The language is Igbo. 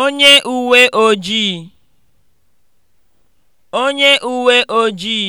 onye uwe ojii onye uwe ojii